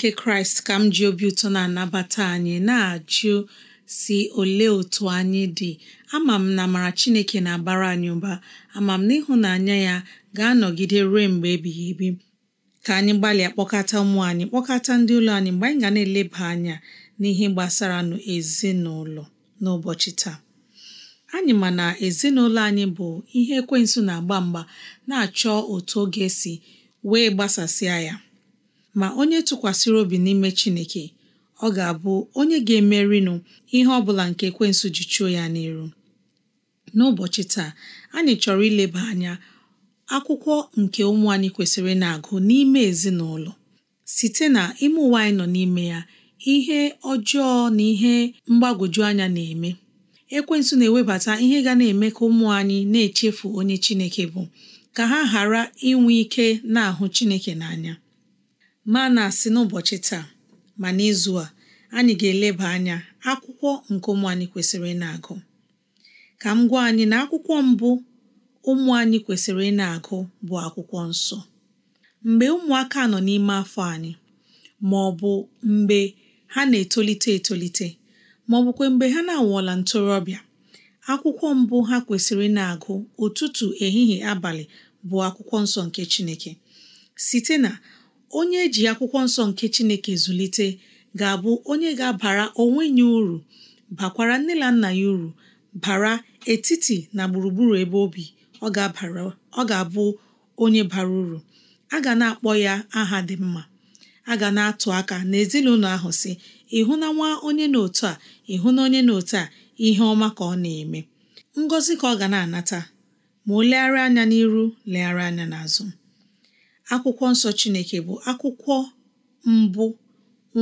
nke kraịst ka m ji obi ụtọ na-anabata anyị na-ajụ si olee otu anyị dị ama m na amara chineke na-abara anyị ụba ama m na ịhụnanya ya ga-anọgide ruo mgbe ebighị ebi ka anyị gbalịa kpọkọta ụmụ anyị kpọkọta ndị ụlọ anyị mgbe anyị ga na-eleba anya n'ihe gbasara ezinụlọ n'ụbọchị taa anyị ma na ezinụlọ anyị bụ ihe ekwensu na-agba mgba na-achọ otu oge si wee gbasasịa ya ma onye tụkwasịrị obi n'ime Chineke ọ ga-abụ onye ga-emerinụ ihe ọ bụla nke ekwensu ji chụọ ya n'iru n'ụbọchị taa anyị chọrọ ileba anya akwụkwọ nke ụmụ anyị kwesịrị na-agụ n'ime ezinụlọ site na ime ụwa anyị nọ n'ime ya ihe ọjọọ na ihe mgbagwoju anya na-eme ekwensu na-ewebata ihe ga na-eme ka ụmụ anyị na-echefu onye Chineke bụ ka ha ghara inwe ike na-ahụ Chineke n'anya ma na-asị n'ụbọchị taa ma n'izu a anyị ga-eleba anya akwụkwọ nke ụmụ anyị kwesịrị ịna agụ ka m gwa anyị na akwụkwọ mbụ ụmụ anyị kwesịrị ịna agụ bụ akwụkwọ nsọ mgbe ụmụaka nọ n'ime afọ anyị ma ọ bụ mgbe ha na-etolite etolite ma ọ bụkwa mgbe ha na-awọla ntorobịa akwụkwọ mbụ ha kwesịrị ịna agụ ụtụtụ ehihie abalị bụ akwụkwọ nsọ nke Chineke site na onye eji akwụkwọ nsọ nke Chineke zụlite ga-abụ onye ga-abara onwe ya uru bakwara nne na nna ya uru bara etiti na gburugburu ebe obi ọ ga abụ onye bara uru a ga na-akpọ ya aha dị mma a ga na-atụ aka n'ezinụlọ ahụ si ịhụ na nwa onye n'otu a ịhụ na onye n'otu a ihe ọma ka ọ na-eme ngọzi ka ọ ga na-anata ma o legharị anya n'iru legharị anya n'azụ akwụkwọ nsọ Chineke bụ akwụkwọ mbụ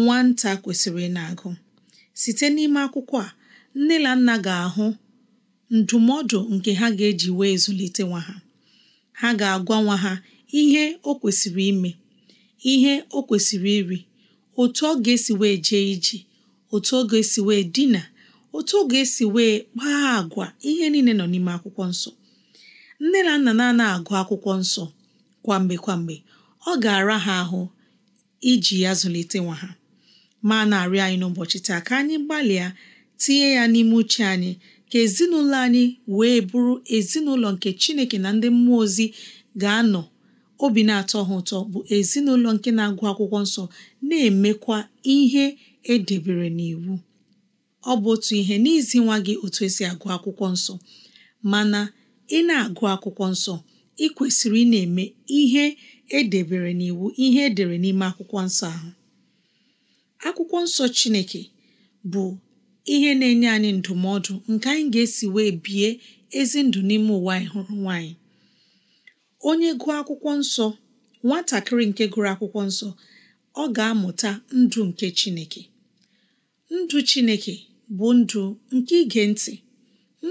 nwata kwesịrị na-agụ site n'ime akwụkwọ a nne na nna ga-ahụ ndụmọdụ nke ha ga-eji wee zụlite nwa ha ha ga-agwa nwa ha ihe o kwesịrị ime ihe o kwesịrị iri otu ọ ga-esi wee jee iji, otu ọ ga-esi wee dina otu ọ ga-esi wee kpaa agwa ihe niile nọ n'ime akwụkwọ nsọ nne na nna na agụ akwụkwọ nsọ kwamgbe kwamgbe ọ ga-ara ha ahụ iji ya zụlite nwa ha ma na-arịọ anyị n'ụbọchị taa ka anyị gbalịa tinye ya n'ime uche anyị ka ezinụlọ anyị wee bụrụ ezinụlọ nke Chineke na ndị mmụọ ozi ga-anọ obi na-atọ ha ụtọ bụ ezinụlọ nke na-agụ akwụkwọ nsọ na-emekwa ihe edebere n'iwu ọ bụ otu ihe n'izi nwa gị otu esi agụ akwụkwọ nsọ mana ị na-agụ akwụkwọ nsọ ị kwesịrị ị na-eme ihe e debere n'iwu ihe edere n'ime akwụkwọ nsọ ahụ akwụkwọ nsọ Chineke bụ ihe na-enye anyị ndụmọdụ nke anyị ga-esi wee bie ezi ndụ n'ime ụwa anyị hụrụ nwaanyị onye gụọ akwụkwọ nsọ nwatakịrị nke gụrụ akwụkwọ nsọ ọ ga-amụta ndụ nke Chineke ndụ Chineke bụ ndụ nke ige ntị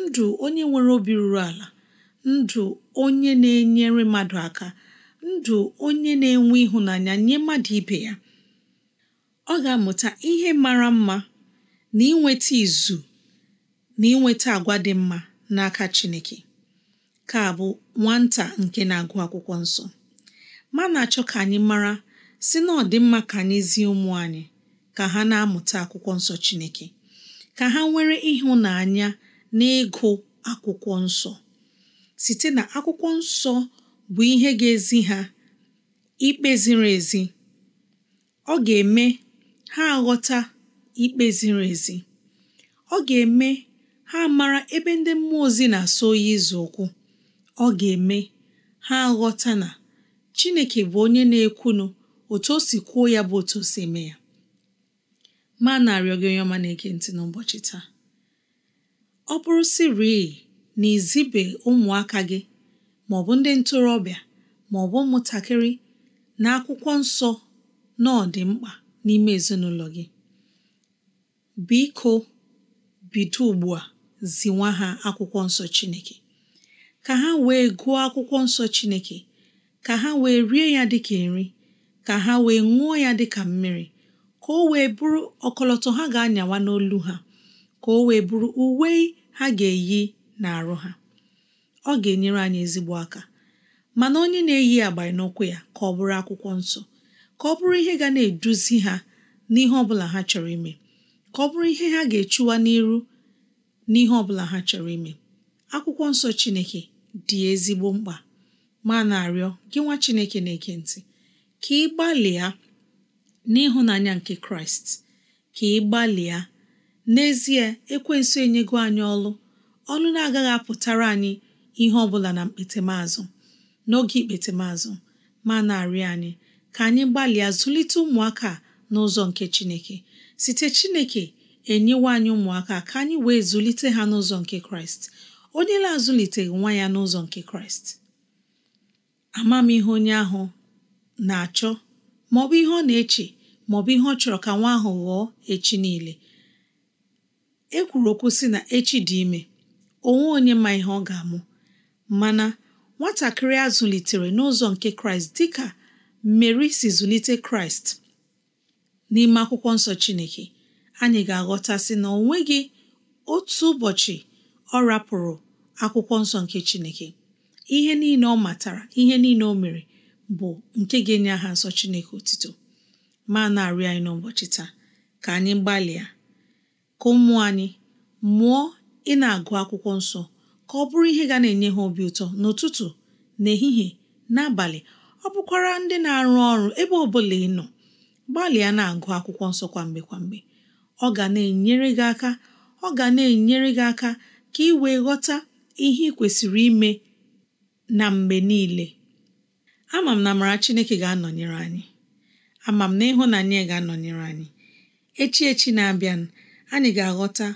ndụ onye nwere obi ruru ala ndụ onye na-enyere mmadụ aka ndụ onye na-enwe ịhụnanya nye mmadụ ibe ya ọ ga-amụta ihe mara mma na inweta izu na inweta agwa dị mma n'aka Chineke ka bụ nwata nke na-agụ akwụkwọ nsọ ma na-achọ ka anyị mara si na ọ dị mma ka anyị zie ụmụ anyị ka ha na-amụta akwụkwọ nsọ Chineke ka ha nwere ịhụnanya na ịgụ akwụkwọ nsọ site na akwụkwọ nsọ bụ ihe ga-ezi ha ikpe ziri ezi ọ ga-eme ha ghọta ikpe ziri ezi ọ ga-eme ha mara ebe ndị mmụọ ozi na-asọ oyi izu ụkwụ ọ ga-eme ha aghọta na Chineke bụ onye na-ekwunu otu o si kwuo ya bụ otu o si eme ya ma na-arịọ gị onye ọma na-ege ntị n'ụbọchị taa ọ bụrụ siri na izibe ụmụaka gị ma ọ bụ ndị ntorobịa bụ ụmụntakịrị na akwụkwọ nsọ na ọ dị mkpa n'ime ezinụlọ gị biko bido ugbu a ziwa ha akwụkwọ nsọ Chineke ka ha wee gụọ akwụkwọ nsọ Chineke ka ha wee rie ya dịka nri ka ha wee ṅụọ ya dịka mmiri ka o wee bụrụ ọkọlọtọ ha ga-anyawa n'olu ha ka o wee bụrụ uwe ha ga-eyi na-arụ ha ọ ga-enyere anyị ezigbo aka mana onye na-eyi agbara n'ụkwụ ya ka ọ bụrụ akwụkwọ nsọ ka ọ bụrụ ihe ga na-eduzi ha n'ihe ọbụla ha chọrọ ime ka ọ bụrụ ihe ha ga-echuwa n'iru n'ihe ọbụla ha chọrọ ime akwụkwọ nsọ Chineke dị ezigbo mkpa ma na-arịọ gị nwa Chineke na-ege ntị ka ị gbalịa n'ịhụnanya nke Kraịst ka ị gbalịa n'ezie ekwensu enyego anyị ọlụ ọlụ na-agaghị apụtara anyị ihe ọbụla na mkpetemazụ n'oge ikpetemazụ ma na-arị anyị ka anyị gbalịa zụlite ụmụaka n'ụzọ nke Chineke site Chineke enyewa anyị ụmụaka ka anyị wee zụlite ha n'ụzọ nke Kraịst onye na-azụliteghị nwa ya n'ụzọ nke Kraịst amamihe onye ahụ na-achọ maọbụ ihe ọ na-eche maọbụ ihe ọ chọrọ ka nwa ahụ ghọọ echi niile e kwuru okwu sị na echi dị ime onwe onye ma ihe ọ ga-amụ mana nwatakịrị a zụlitere n'ụzọ nke kraịst dịka mmeri si zụlite kraịst n'ime akwụkwọ nsọ chineke anyị ga-aghọtasị na o nweghị otu ụbọchị ọ rapụrụ akwụkwọ nsọ nke chineke ihe niile ọ matara ihe niile ọ mere bụ nke ga-enye aha nsọ chineke otito ma na anyị n'ụbọchị taa ka anyị gbalịa ka ụmụ anyị mụọ ị na-agụ akwụkwọ nsọ ka ọ bụrụ ihe ga na-enye ha obi ụtọ n'ụtụtụ n'ehihie n'abalị ọ bụkwara ndị na-arụ ọrụ ebe ọ bụla ị nọ gbalịa na-agụ akwụkwọ nsọ kwamgbe kwamgbe ọ ga na-enyere gị aka ọ ga na-enyere gị aka ka ị wee ghọta ihe ị kwesịrị ime na mgbe niile ama m na amara Chineke ga-anọnyere anyị ama m na ịhụnanya ga-anọnyere anyị echi echi na-abịa anyị ga-aghọta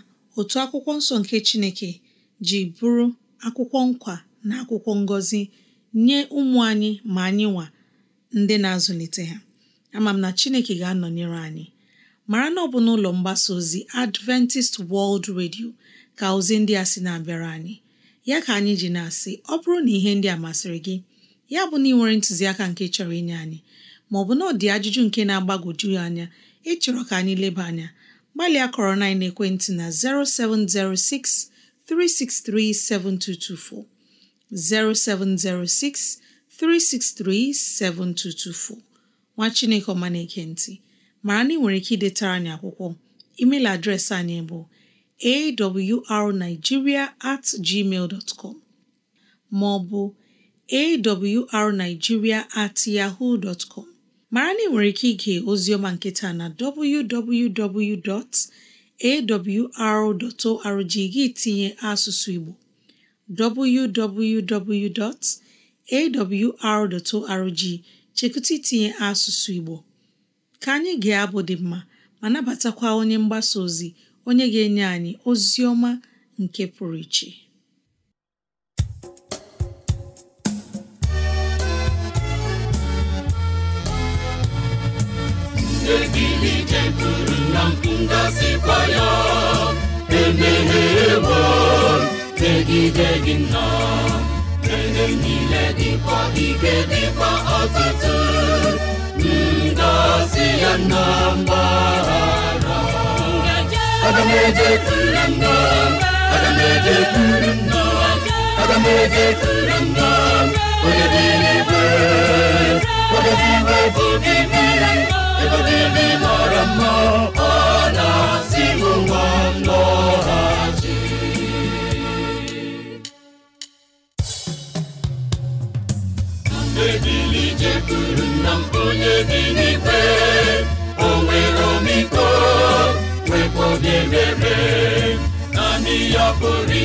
otu akwụkwọ nsọ nke Chineke ji bụrụ akwụkwọ nkwa na akwụkwọ ngọzi nye ụmụ anyị ma anyị nwa ndị na-azụlite ha ama m na Chineke ga-anọnyere anyị mara na ọ bụ n'ụlọ mgbasa ozi Adventist World Radio ka ozi ndị a si na-abịara anyị ya ka anyị ji na-asị ọ bụrụ na ihe ndị a masịrị gị ya bụ na ị nwere ntụziaka nke chọrọ inye anyị maọbụ na ọ dị ajụjụ nke na-agbagwoju anya ịchọrọ ka anyị leba anya gbalịa kọrọ na ekwentị na 0706 363 7224 0706 363 7224 nwa Chineke ọma na-ekentị mara na ị nwere ike idetara anyị akwụkwọ email adreesị anyị bụ awrnigeria at gmail com ma ọ bụ awrnigeria at yahoo dot com mara na ị nwere ike ige ozioma nketa na www.awr.org gị tinye asụsụ Igbo www.awr.org chekụta itinye asụsụ Igbo ka anyị ga-abụ dị mma ma nabatakwa onye mgbasa ozi onye ga-enye anyị ozi ọma nke pụrụ iche eze gị n'ije gụrụ na ya emeghewo megide gị nna ihe niile dịkwa ike dịkwa ọtụtụ ngọzi ya na mgbahara aga m eje kuru aga m eje kuru aga m onye dị n'ebe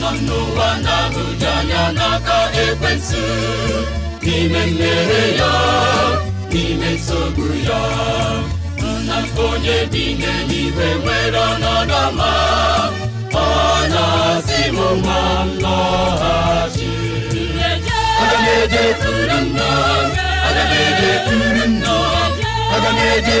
nọ n'ụwa na-ahụju anya n'aka ekwensụ n'ime mmehie ya n'ime nsogbu ya nna onye dị n'eluigwe nwere ọnọdụ ọma ọ na-asị m ma aga m ejekwuru nna aga m ejekwuru nna onye dị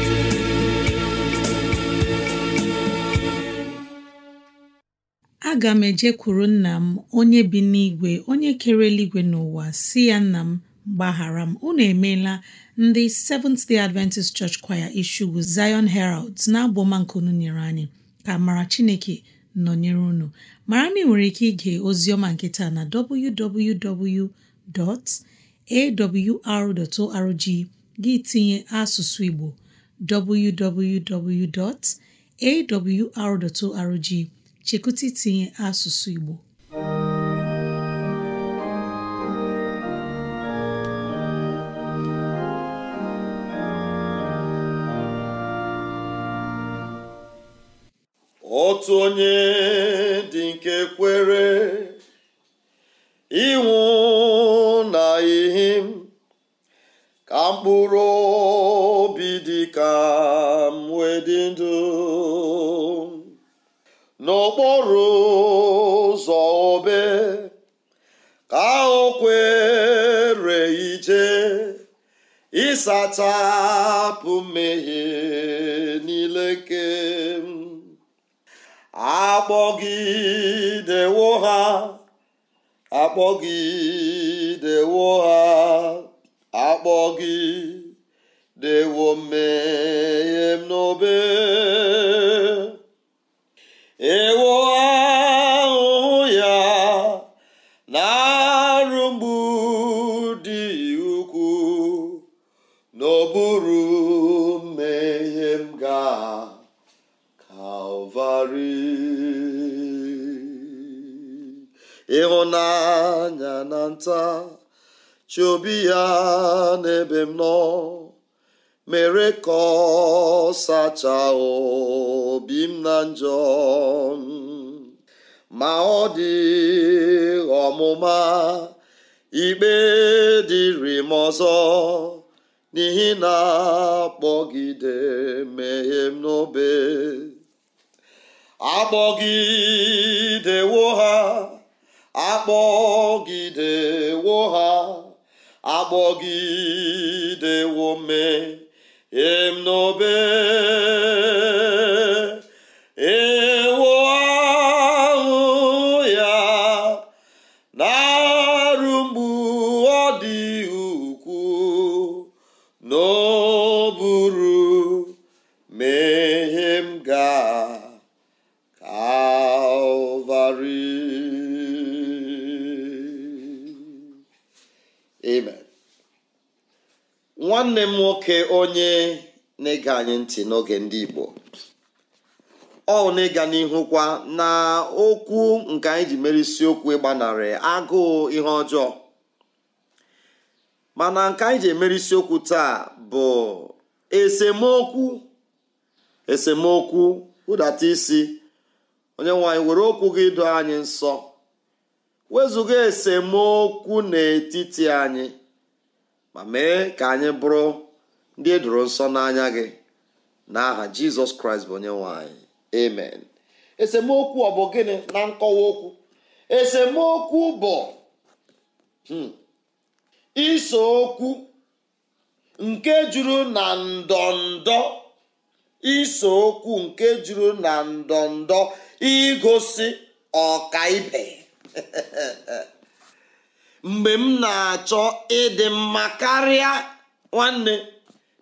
aga m ejekwuru nna m onye bi n'igwe onye kere eluigwe n'ụwa si ya nna m gbaghara m unu emeela ndị Seventh Day Adventist Church Choir Isugwu Zion herald na-abụ anyị ka mara Chineke nọnyere unu mara na ị nwere ike ige ozi ọma nke na www.awr.org gị tinye asụsụ Igbo www.awr.org chekwụta itinye asụsụ Igbo otu onye dị nke kwere ịnwụ na ihe ka mkpụrụ obi dị ka m wee dị ndụ n'okporo ụzọ obe ka o kwere ije ịsachapụ mmehie niile nke akpọgidewo ha akpọgidewo ha akpọgidewo mmehie m n'obe ewo ahụhụ ya na-arụ mgbu dị ukwuu n'ọbụrụ mmehie m ga Kalvarị ịhụnanya na nta chi obi ya n'ebe m nọ mere ka ọ obi m na njọ ma ọ dị ọmụma ikpe dịrị m ọzọ n'ihi na akpọgide mmehie n'obe akpọgidewo ha akpọgidewo ha akpọgidewo mmehie emnobe ewu ahụ ya na-arụ mgbu ọ dị ukwuu n'oburu nwanne m nwoke onye na-ege anyị ntị n'oge ndị Igbo ọ na-ịga n'ihu kwa na okwu nke anyị ji mere isiokwu ịgbanarị agụụ ihe ọjọọ mana nke anyị ji emere isiokwu taa bụ esemokwu esemokwu hụdata isi onye nwanyị were okwu gị doo anyị nsọ wezụga esemokwu n'etiti anyị ma mee ka anyị bụrụ ndị e edoro nsọ n'anya gị n'aha jizọs kraịst bụ onye nwanyị amen esemokwu ọ bụ gịnị na nkọwa okwu esemokwu bụ hmm, iso okwu nke juru na ndọndọ iso okwu nke juru na ndọndọ igosi ọkaibe mgbe m na-achọ ịdị mma karịa nwanne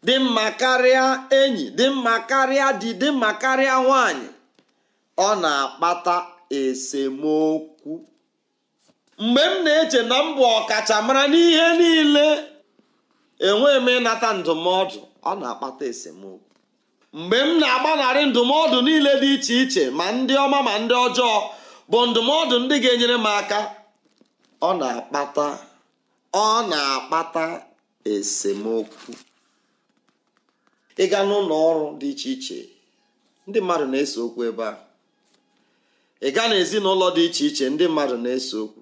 dị mma karịa enyi dị mma karịa di dị mma karịa nwanyị ọ na-akpata esemokwu mgbe m na-eche na mbụ bụ ọkachamara n'ihe niile enweghị m ịnata ndụmọdụ ọ na-akpata esemokwu mgbe m na-agbanarị ndụmọdụ niile dị iche iche ma ndị ọma ma ndị ọjọọ bụ ndụmọdụ ndị ga-enyere m aka ọ na-akpata ọ na-akpata esemokwu ịga n'ụlọ ọrụ dị iche iche ndị mmadụ na-ese okwu ebe a ịga n'ezinụlọ dị iche iche ndị mmadụ na-ese okwu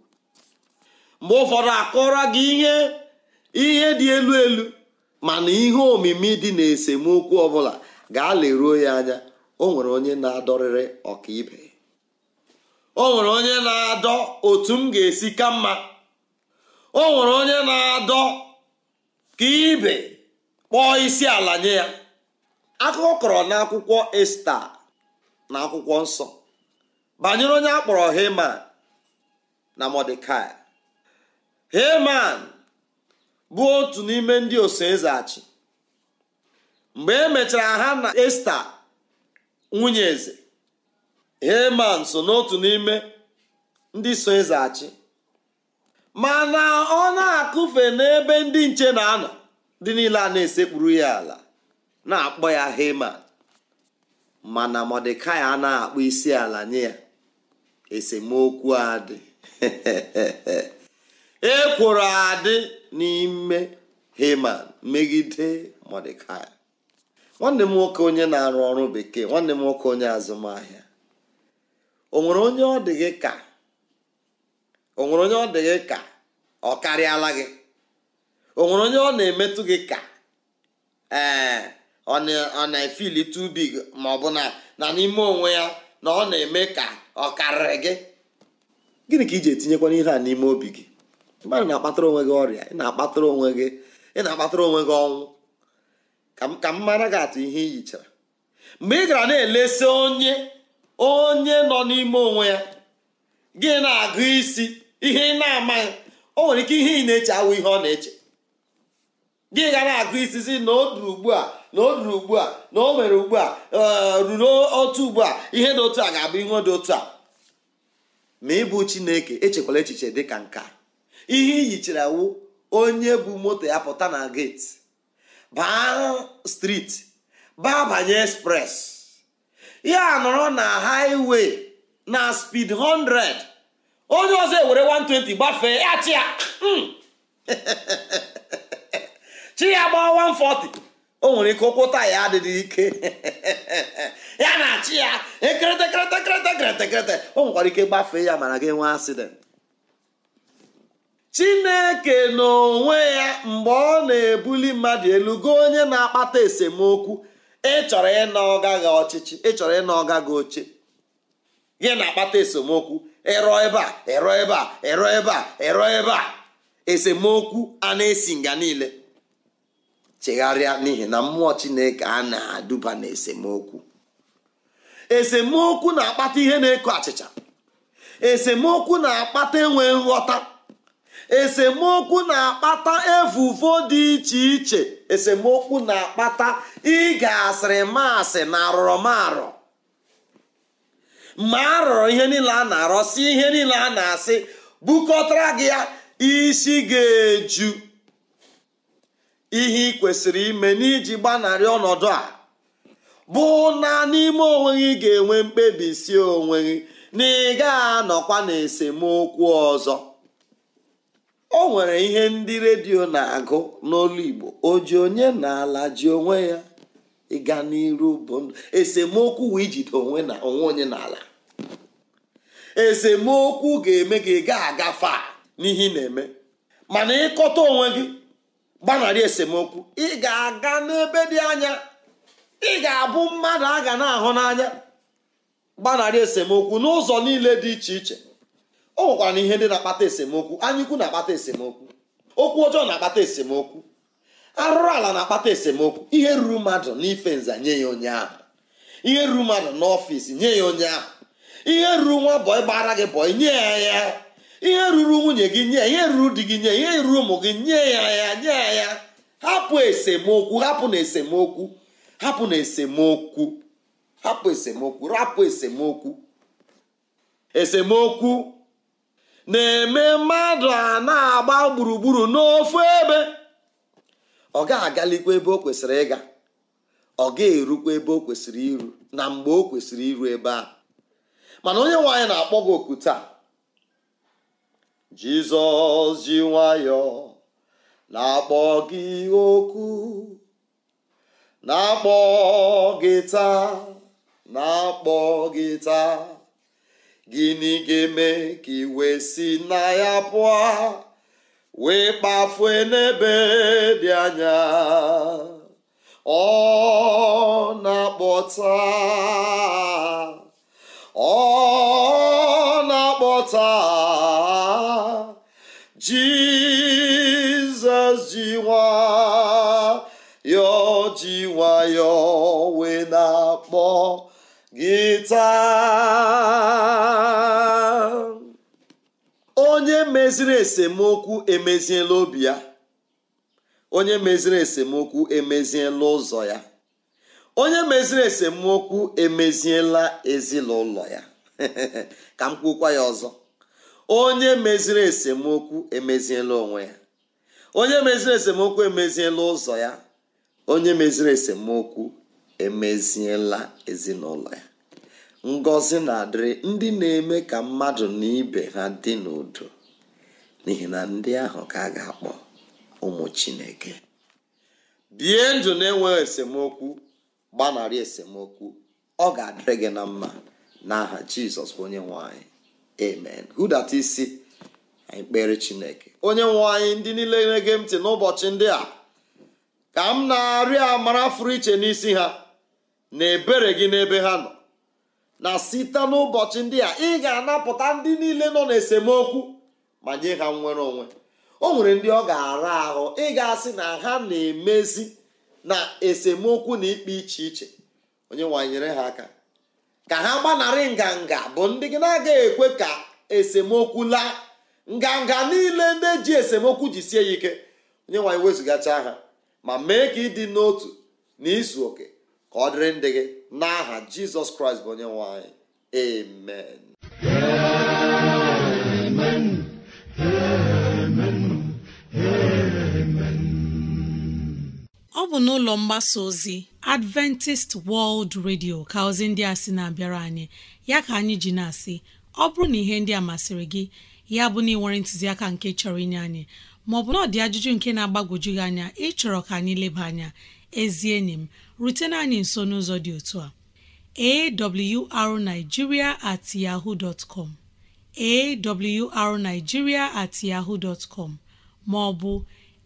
mgbe ụfọdụ akọrọ gị ihe ihe dị elu elu mana ihe omimi dị na esemokwu ọbụla ga leruo ya anya o nwere onye na-adọrịrị ọkaibe o nwere onye na-adọ otu m ga-esi ka mma o nwere onye na-adọ ka ibe kpọọ isi ala nye ya akụkọ kọrọ n'akwụkwọ esta na akwụkwọ nsọ banyere onye a kpọrọ heman na mọdekai heman bụ otu n'ime ndị eze achị mgbe e mechara ha na esta nwunye eze heman so n'otu n'ime ndị so ịzaghachi mana ọ na-akụfe n'ebe ndị nche na-anọ dị niile a na-esekpuru ya ala na-akpọ ya heman mana mọdekai a na-akpọ isi ala nye ya esemokwu adị ekworo adị n'ime heman megide mọdekai nwanne m nwoke onye na-arụ ọrụ bekee nwanne m nwoke onye azụmahịa onwere onye ọ dị gị ka ọ gị ka karịala gị onye ọ na-emetụ gị ka ee ọ na-efili tubi ma ọ bụ na na n'ime onwe ya na ọ na-eme ka ọ karịrị gị gịnị ka iji etinyekwa n'ihe a n'ime obi gị mmadụ na-akpatara onwe gị ọrịa ị na-akpatara onwe gị ị na-akpatara onwe gị ọnwụ ka m mara gị atụ ihe i mgbe ị gara na-elesi onye onye nọ n'ime onwe ya gị na-agụ isi ihe ị na-amaghị o nwere ike ihe ị na-eche awụ ihe ọ na-eche gị ga na-agụ isi si na o duru ugbu a na o duru ugbu a na o nwere ugbu a e, ruru otu ugbu a ihe dị otu a ga-abụ ihe dị otu a ma ịbụ chineke echekwala echiche dị ka nka ihe iyichara awụ onye bụ moto ya pụta na geti baa striti baa banye express ya nọrọ na highway na spid 100 onye ọzọ ewere 120 gbafee ya chi ya hmm. chi ya gbaa 140 o nwere ike ụkwụ taya adịghị ike ya na achị ya ekeretekeretekeretekeretekerete o nwekwara ike gbafee ya mana gị nwee asident chineke n'onwe ya mgbe ọ na-ebuli mmadụ elu goo onye na-akpata esemokwu ịchọrọ ịna ọga gị ọchịchị ịchọrọ ịna ọga gị oche gị na-akpata esemokwu ịrọ ebe a ịrọ ebe a ịrọ ebe a ịrọ ebe a esemokwu a na-esi nga niile chegharịa n'ihi na mmụọ chineke a na-aduba na esemokwu esemokwu na-akpata ihe na-eko achịcha esemokwu na-akpata enwe nghọta esemokwu na-akpata evuvo dị iche iche esemokwu na-akpata ịga asịrị masị na arụrụmarụ ma a rụrụ ihe niile a na-arọsi ihe niile a na-asị bukọtara gị ya isi ga-eju ihe ị kwesịrị ime n'iji gbanarị ọnọdụ a bụ na n'ime onwe gị ga-enwe mkpebi si onwe gị na ị ga-anọkwa na esemokwu ọzọ o nwere ihe ndị redio na-agụ n'olu igbo ji onye na-ala ji onwe ya ịga n'iru bụ ndụ esemokwu wee ijide onwe na onwe onye n'ala esemokwu ga-eme gị ị ga agafa n'ihe ị na-eme mana ịkọta onwe gị gbanarị esemokwu ị ga-aga n'ebe dị anya ị ga-abụ mmadụ a ga na-ahụ n'anya gbanarị esemokwu n'ụzọ niile dị iche iche o nwekwara na ihe ndị na-akpata esemokwu anyụkwu na-akpata esemokwu okwu ọjọọ na-akpata esemokwu arụrụ ala na-akpata esemokwu ihe ruru mmadụ n'ife nza nye ya onye ahụ ihe ruru mmadụ n'ọfịs nye ya onye ahụ ihe ruru nwa bọị gbara gị bọị nye ya ya ihe ruru nwunye gị nye ihe ruru di gị nye ihe ruru ụmụ gị nye ya ya nye ya ya hapụ esemokwu hapụ na esemokwu hapụ na esemokwu hapụ esemokwu rapụ esemokwu esemokwu na-eme mmadụ a na-agba gburugburu n'ofu ebe ọ ga-agalikwa ebe o kwesịrị ịga ọ ga-erukwa ebe o kwesịrị iru na mgbe o kwesịrị iru ebe a mana onye nwe na-akpọ gị oku taa jizọs ji nwayọọ na-akpọ gị okwu na-akpọ gị taa na-akpọ gị taa gịnị ga-eme ka iwe si na ya pụọ wee kpafue n'ebe dị anya ọ na-akpọta ọ na-akpọta jizọs ji nwayọọ ji nwayọọ wee na-akpọ gị taa meziri esemokwu emeziela obi ya onye meziri esemokwu emeziela ụzọ ya onye meziri esemokwu emeziela ezinụlọ ya ka m kwukwa ya ọzọ onye meziri esemokwu emeziela onwe ya onye meziri esemokwu emeziela ụzọ ya onye meziri esemokwu emeziela ezinụlọ ya ngọzi na-adịrị ndị na-eme ka mmadụ na ibe ha dị n'udo n'ihi na ndị ahụ ka a ga-akpọ ụmụ chineke bie ndụ na-enweghị esemokwu gbanarị esemokwu ọ ga-adịrị gị na mma n'aha jizọs onye nwanyị amen datị isi anyị kpere chineke onye nwanyị ndị niile na-ege ntị n'ụbọchị ndị a ka m na-arịọ amara fụrụ iche n'isi ha na ebere gị n'ebe ha nọ na site n'ụbọchị ndị a ị ga-anapụta ndị niile nọ n'esemokwu ma nye ha nwere onwe o nwere ndị ọ ga-ara ahụ ịgasị na ha na-emezi na esemokwu na ikpe iche iche onye nwanyere ha aka ka ha gbanarị nganga bụ ndị gị na aga ekwe ka esemokwu laa nganga niile ndị ji esemokwu ji sie ya ike onye nwanyị wezụgacha ha ma mee ka ịdị n'otu na izu oke ka ọ dịrị ndị gị n'aha jizọs kraịst bụ onye nwanyị amen ọ bụ n'ụlọ mgbasa ozi Adventist World Radio ka ozi ndị a sị na-abịara anyị ya ka anyị ji na-asị ọ bụrụ na ihe ndị a masịrị gị ya bụ na ị nwere ntụziaka nke chọrọ inye anyị maọbụ na ọ dị ajụjụ nke na agbagoju gị anya ịchọrọ ka anyị leba anya ezi enyi m rutena anyị nso n'ụzọ dị otu a arigiria at yahoo dot com awrnigeria at yahoo dot com maọbụ